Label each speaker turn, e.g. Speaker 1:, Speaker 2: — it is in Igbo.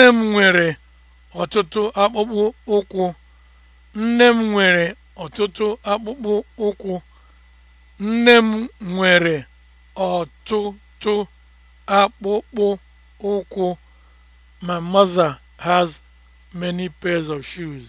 Speaker 1: Nne m nwere ọtụtụ akpụkpọ ụkwụ. Nne m nwere ọtụtụ akpụkpọ ụkwụ. Nne m nwere ọtụtụ akpụkpọ ụkwụ. My mother has many pairs of shoes.